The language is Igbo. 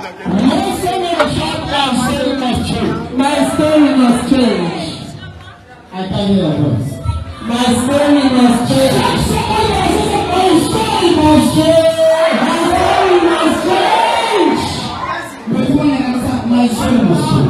Listen and hear my story must change. My story must change. I can hear your voice. My story must change. My story must change. My story must change. My story must change.